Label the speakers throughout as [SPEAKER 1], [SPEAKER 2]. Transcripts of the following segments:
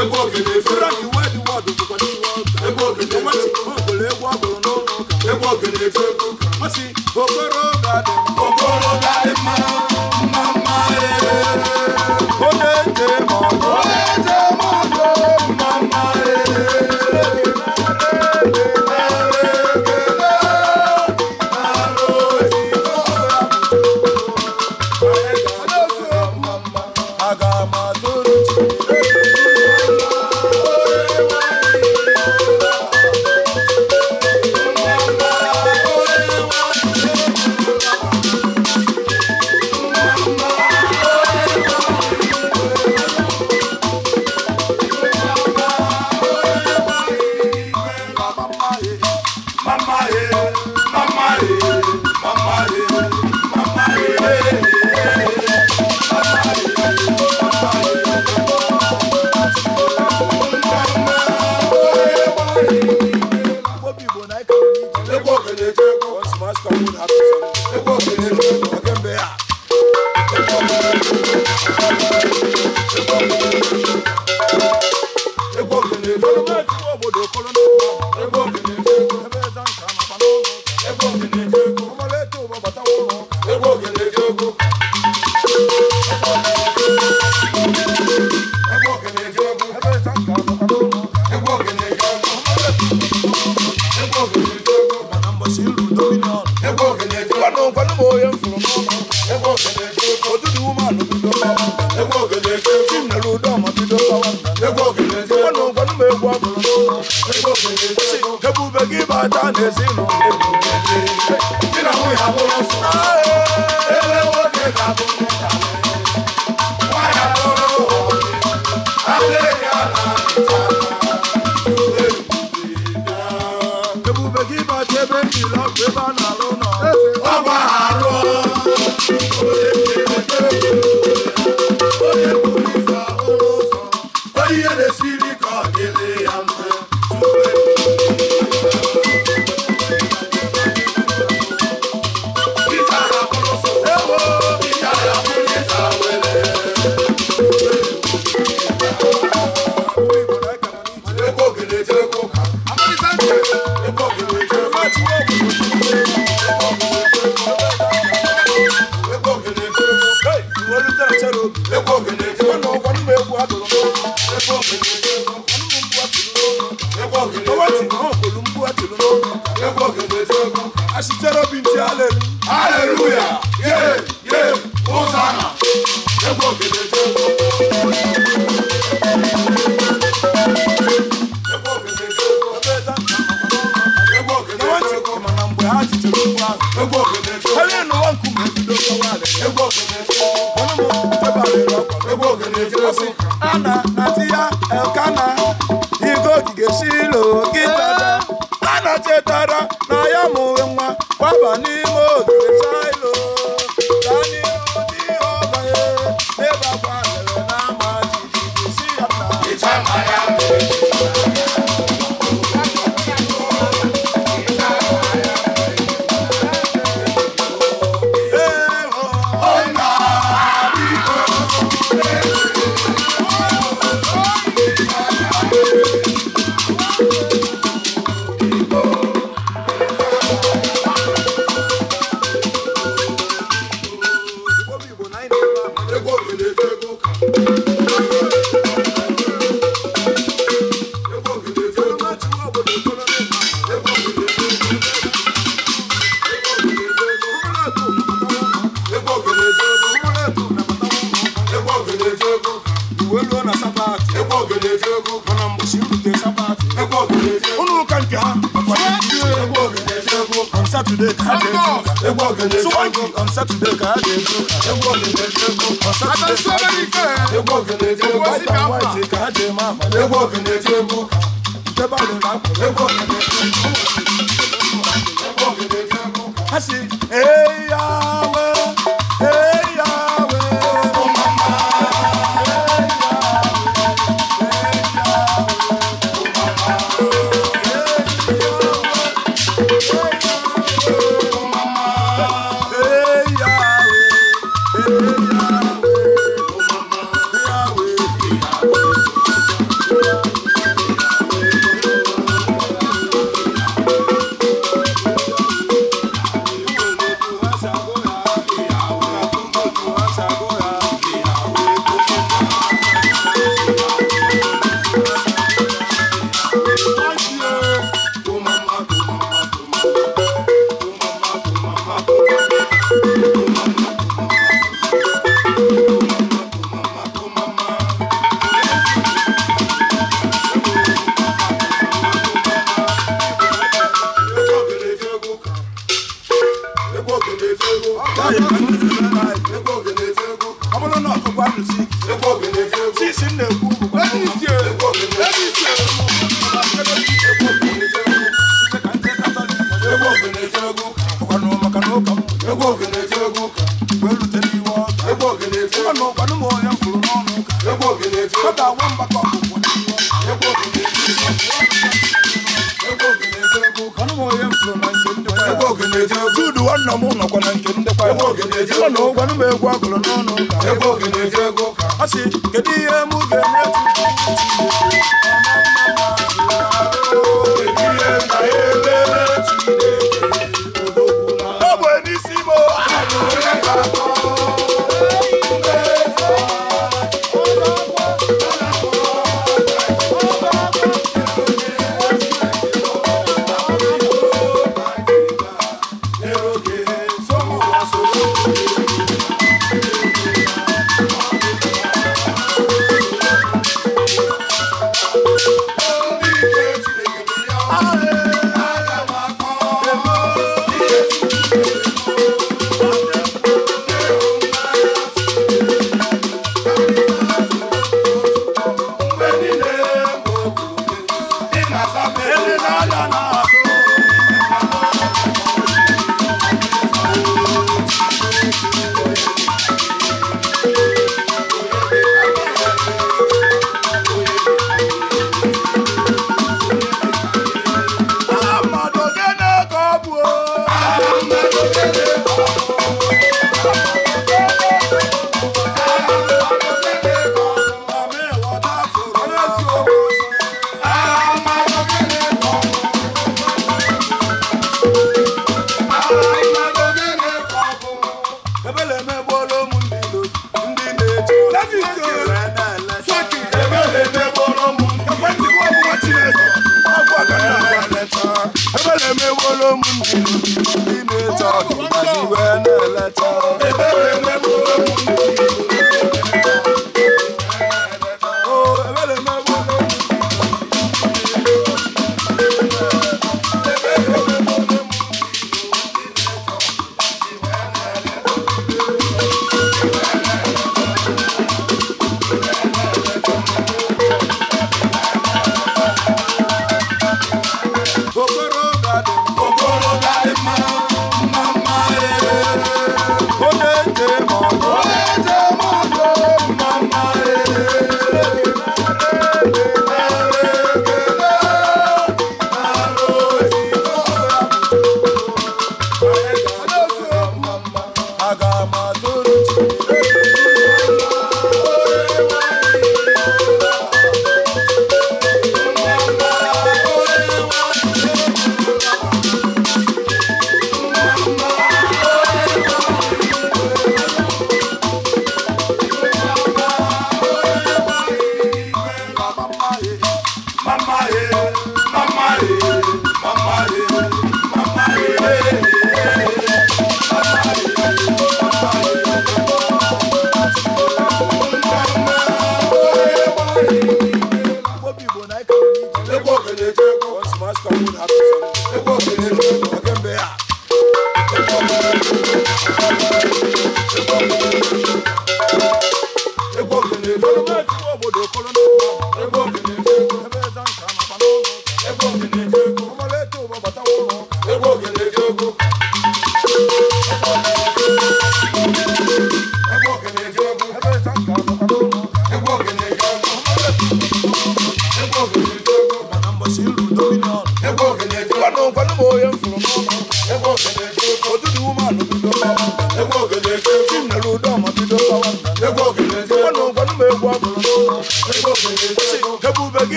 [SPEAKER 1] egwu ogene efere egwu ogene n'ụlọ ụka efe okoro ga-adị ebube gị bata n'ezinụlọ ebube gị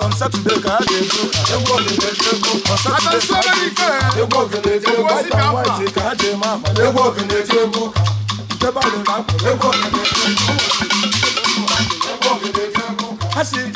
[SPEAKER 1] on Saturday ka a na-egbu egwu ogeneji egwu on Saturday ka a na-egwu ogeneji egwu white and white ka a na-eme amala egwu ogeneji egwu nke balụrụ akpụ egwu ogeneji egwu ha si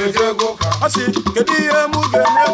[SPEAKER 1] na eji ego ụka ọ sị
[SPEAKER 2] kedu ihe m ga-eme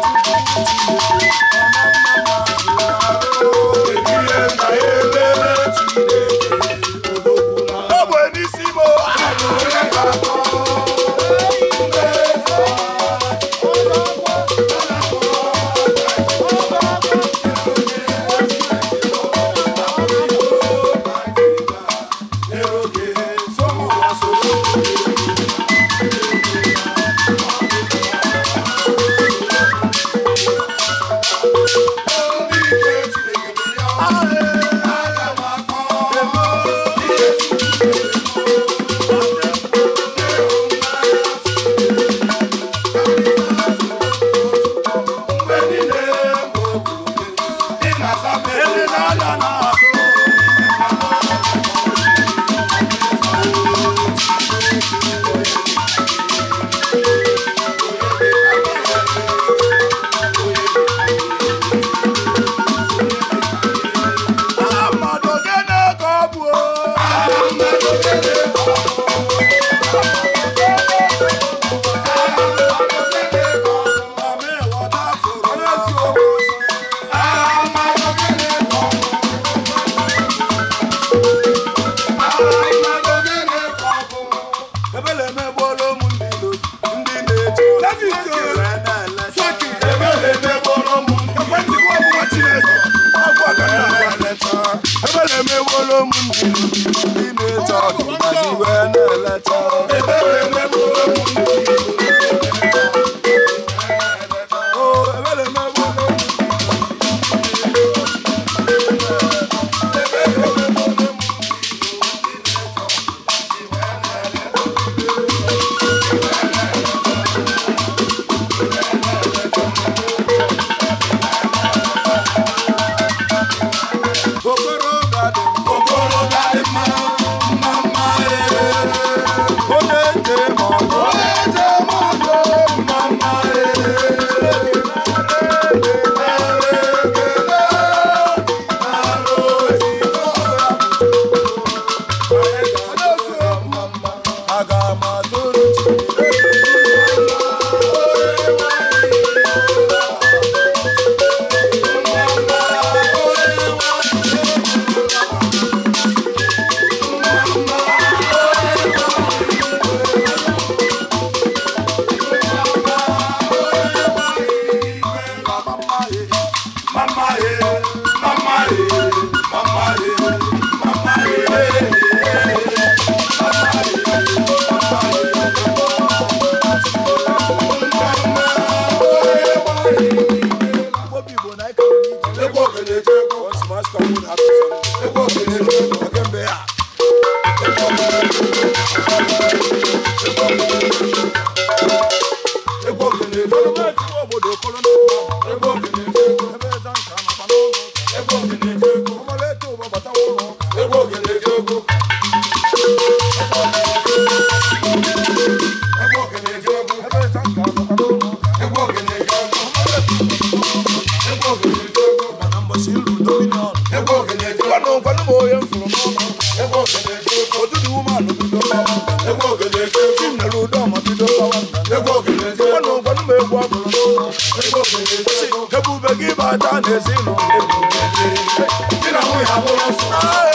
[SPEAKER 1] Ebu begi bata nezi no ebu begi. Tina mu ya bolo so.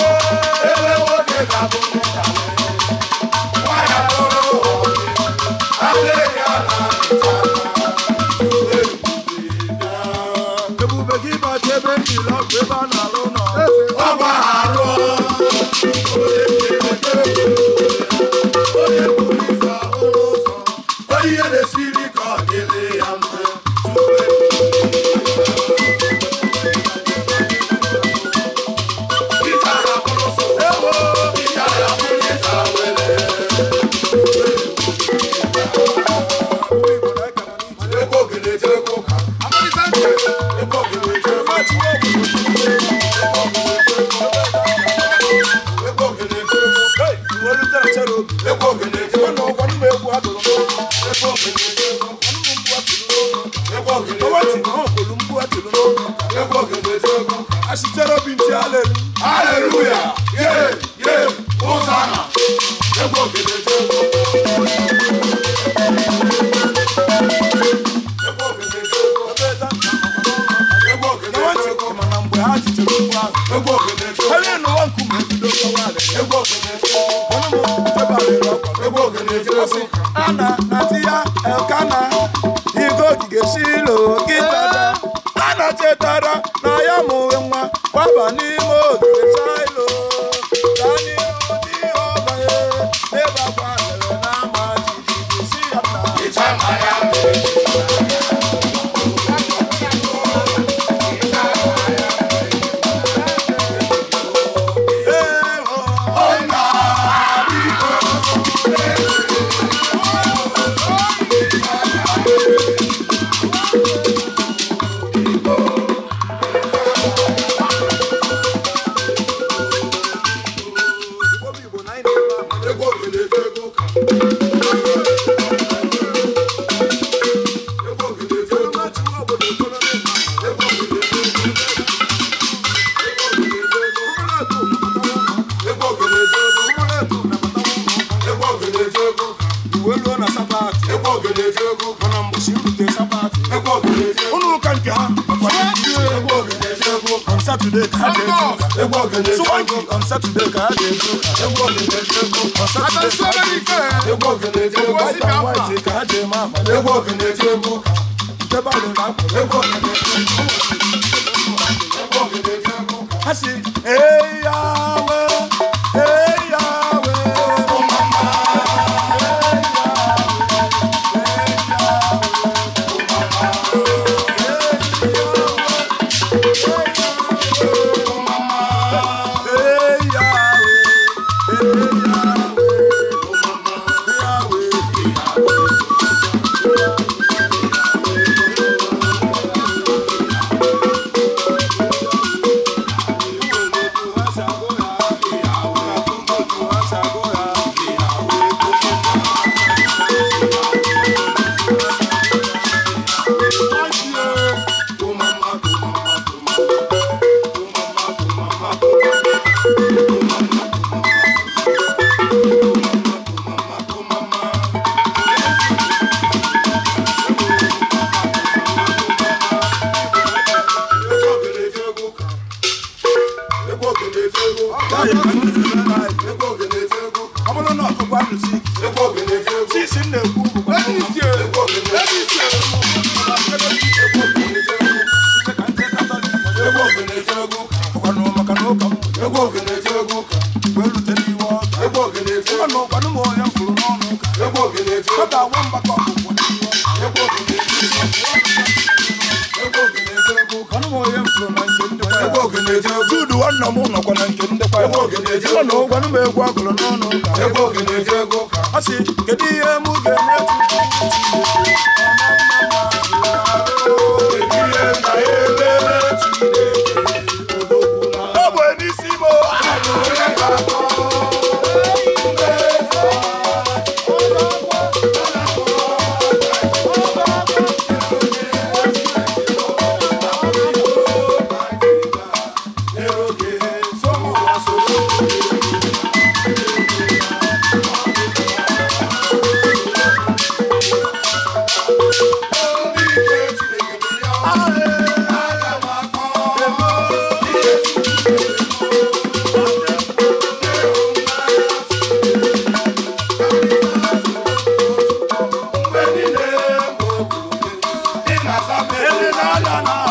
[SPEAKER 1] Oh.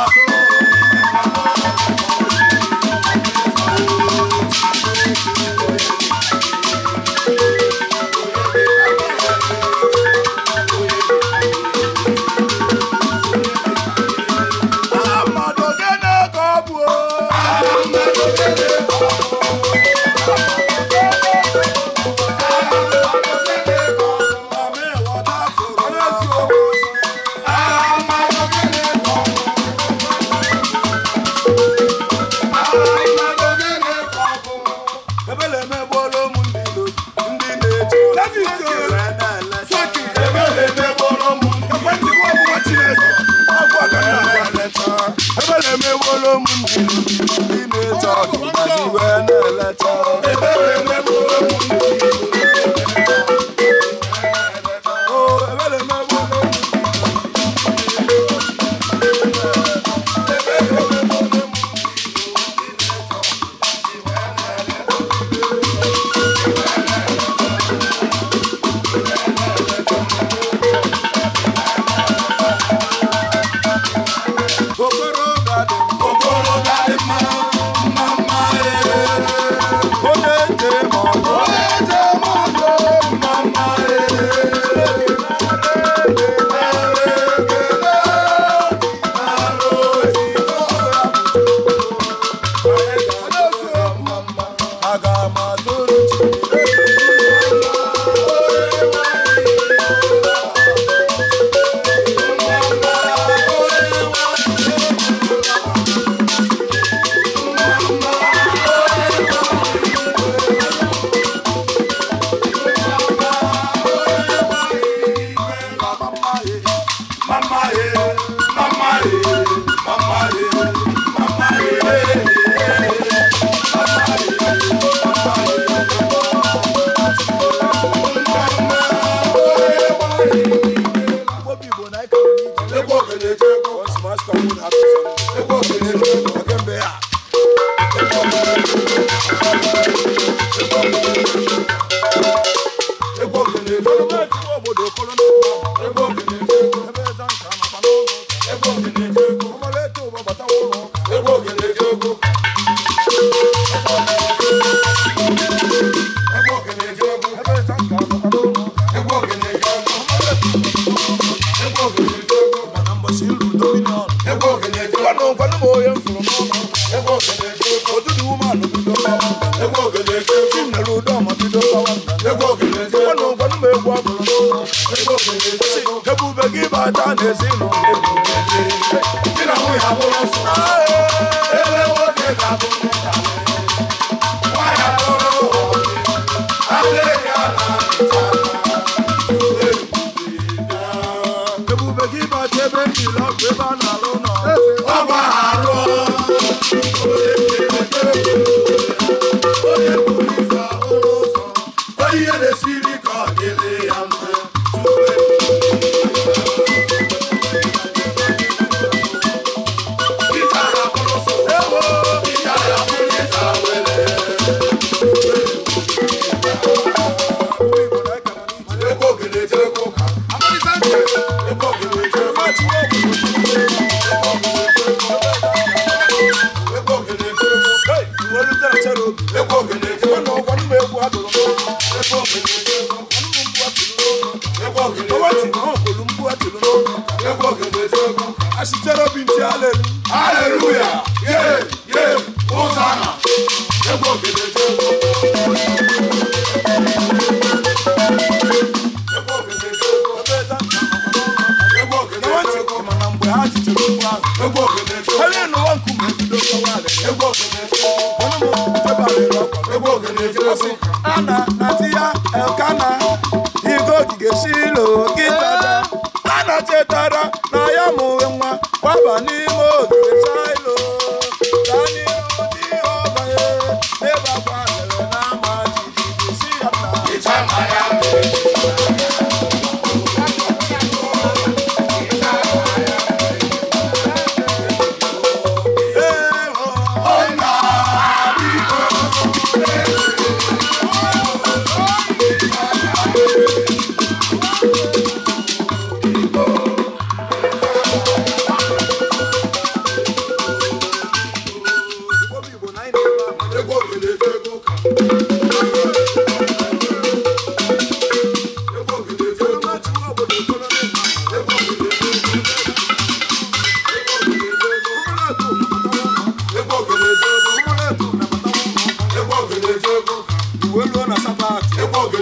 [SPEAKER 1] uwe luo na sabat mana mgbochi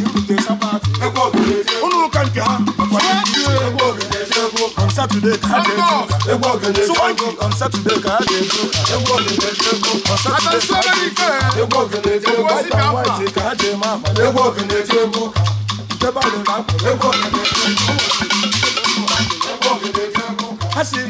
[SPEAKER 1] irute sabat ụnụ ụka nke ha on Saturday ka ha ga-ebu sụwangi on Saturday ka ha ga-ebu on Saturday ka ha ga-ebu white and white ka ha ga-eme amala ntebe alụrụ akwa ha si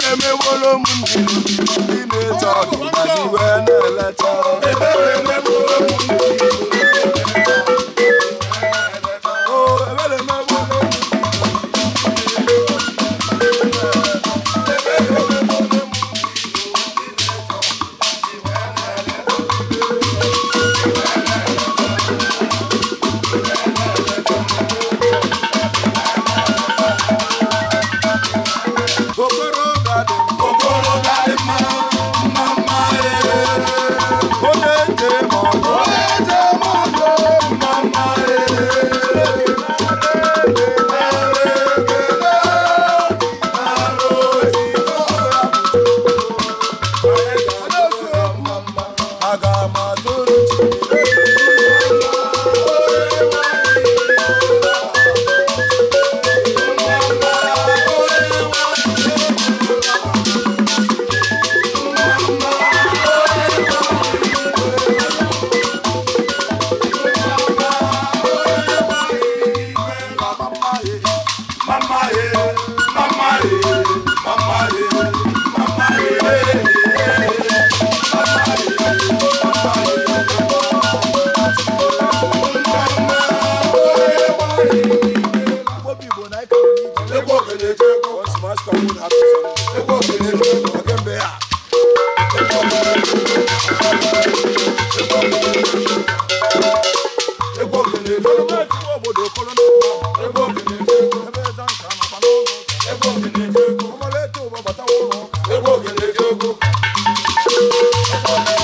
[SPEAKER 1] Tell me what I'm Thank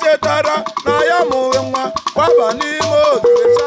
[SPEAKER 1] chetara na ya mụrụ nwa kwaba n'ime ogige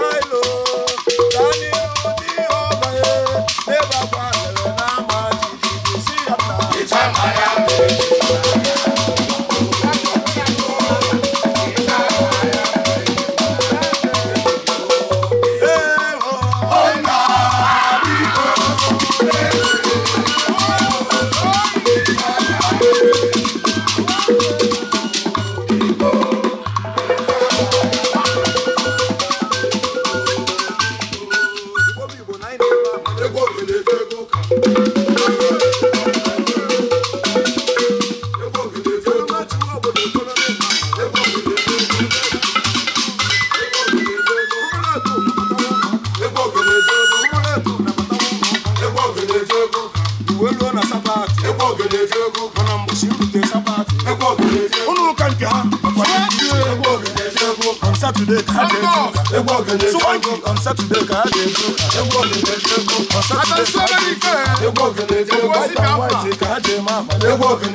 [SPEAKER 1] sátúndé káàdé bú ewu ògèdè dé bú ọ̀sátúndé káàdé bú ewu ògèdè dé bú ọ̀sátúndé káàdé má má ewu ògèdè.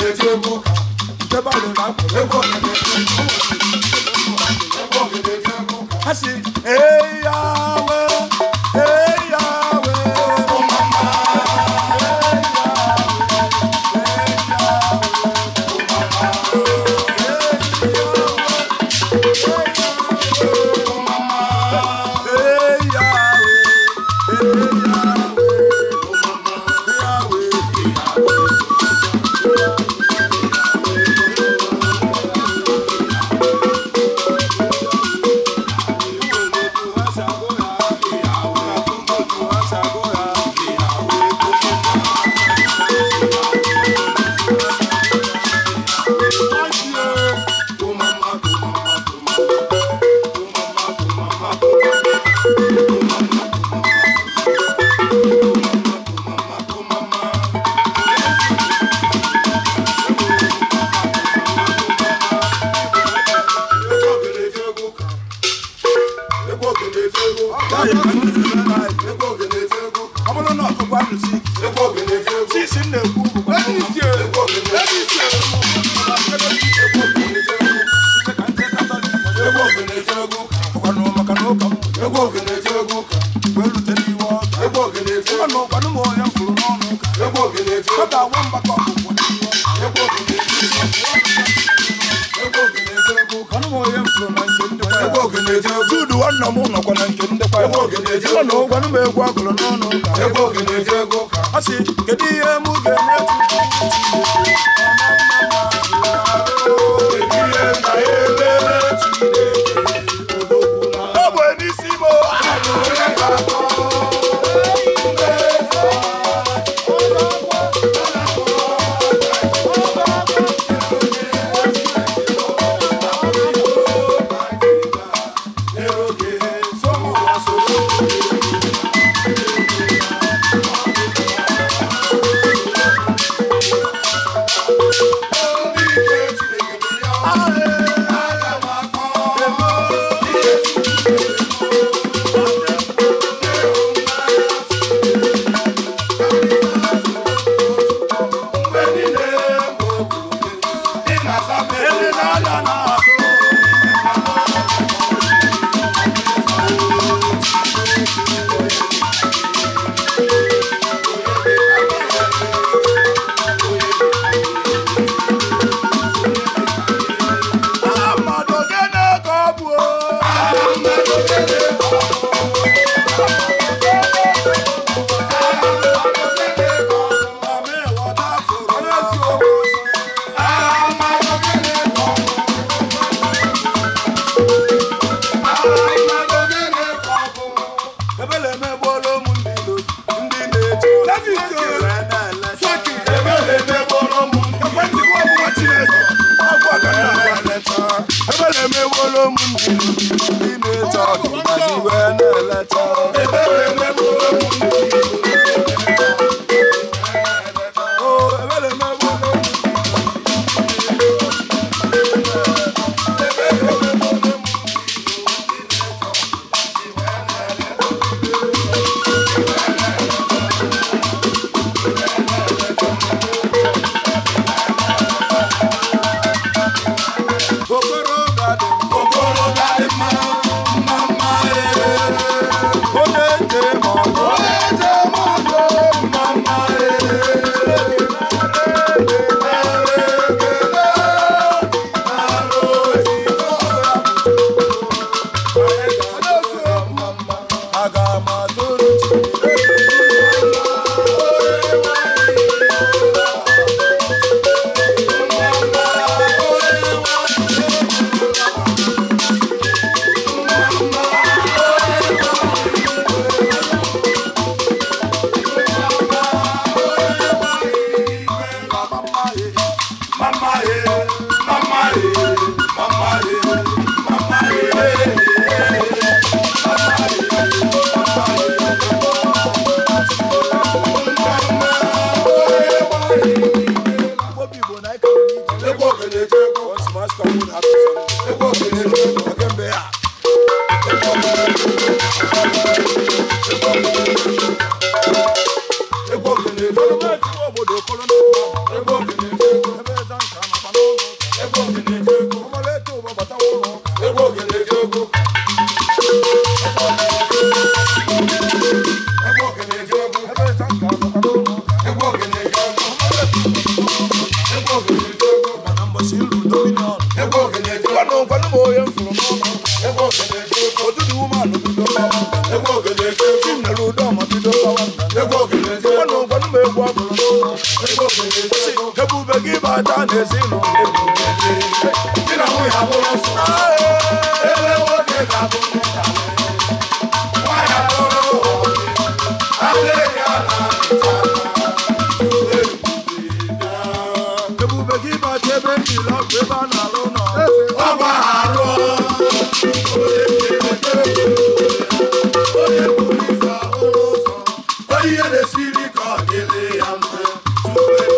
[SPEAKER 2] ihe na-esiri ka ọ dịrị ya mfe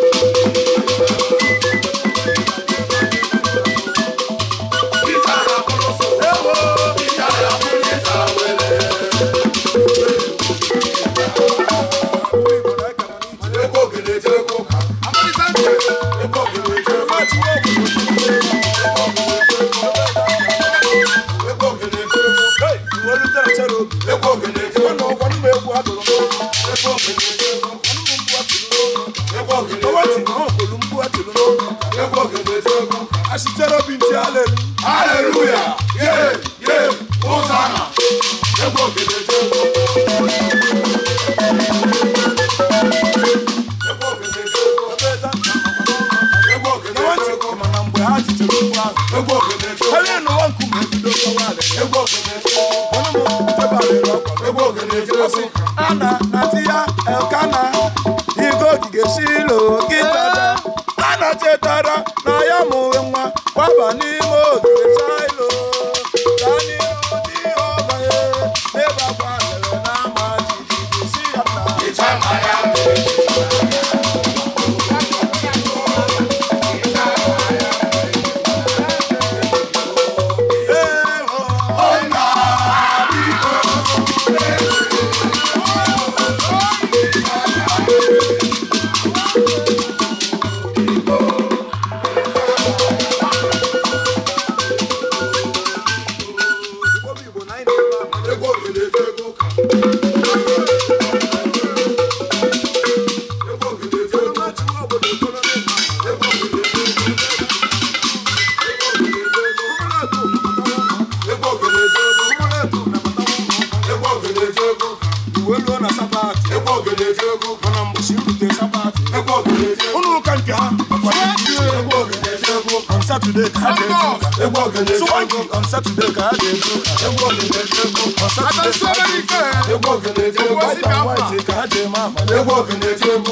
[SPEAKER 1] rock. Egwu ogene Congo on Saturday ka a na-egwu. Egwu ogene Congo on Saturday ka a na-egwu. Egwu ogene Congo white and white ka a dị ma ama.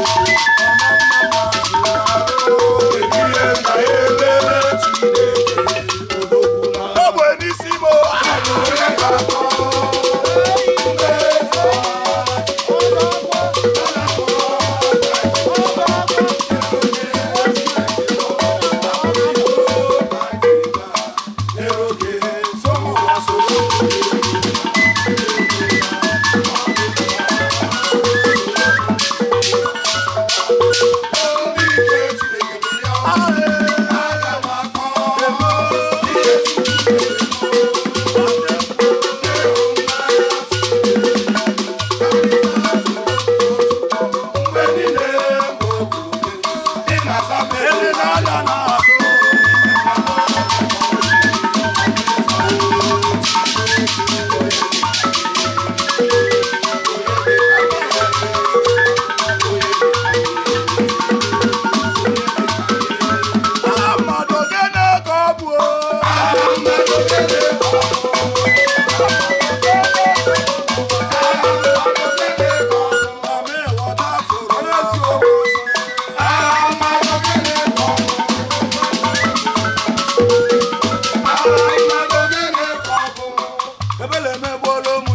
[SPEAKER 2] ebele emegbuola ụmụ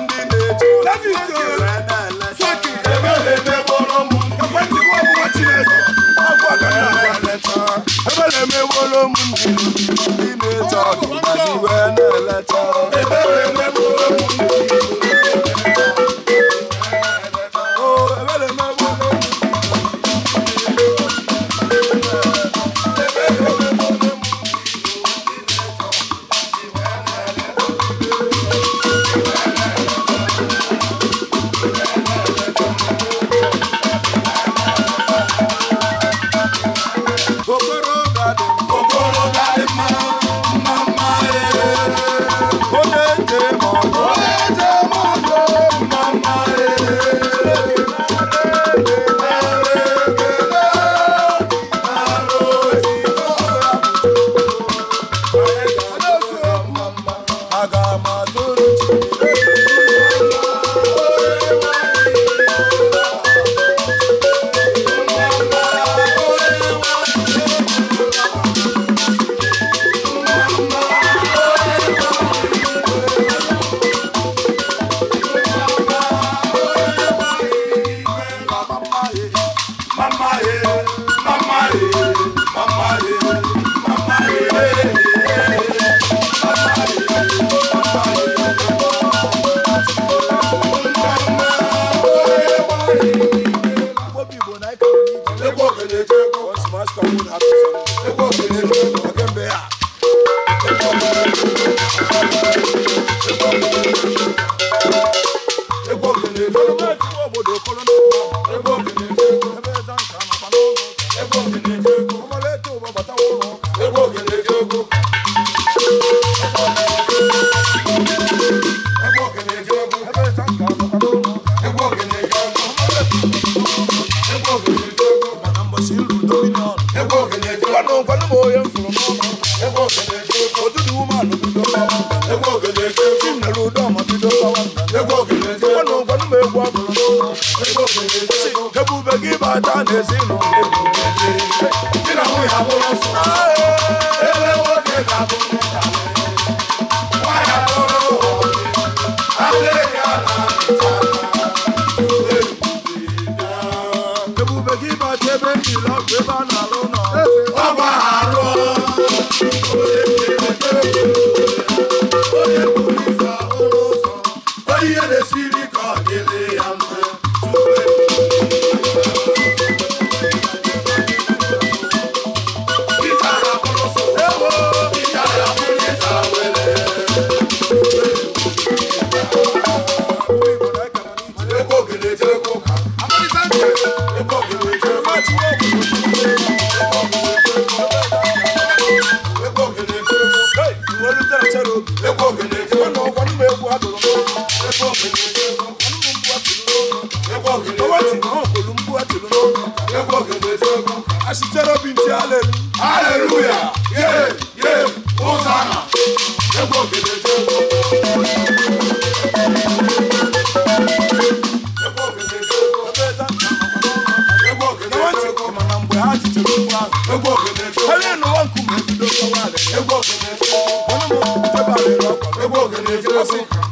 [SPEAKER 2] ndị ndị na-eche
[SPEAKER 1] Ebo mi ni wo mo ni. sirokwa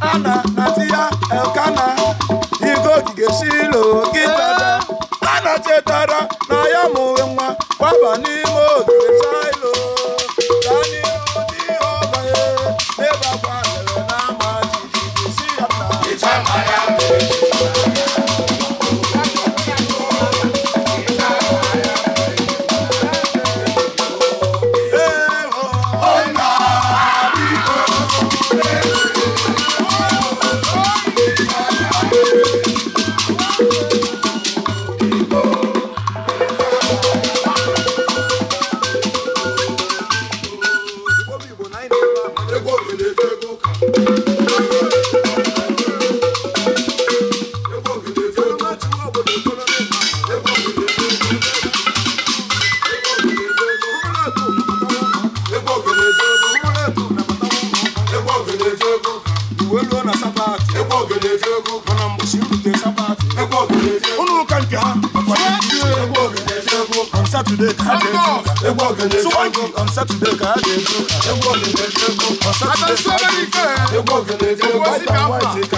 [SPEAKER 1] ana elkana igo ogige shilo gịtada a na chetara na ya mụwe nwa gbaba n'ime ogige chaya sátúndé káàdé ewu ògèdè ewu ọ̀sátúndé káàdé ewu ògèdè ewu ọ̀sátúndé káàdé ewu ògèdè ewu ọ̀sátúndé káàdé.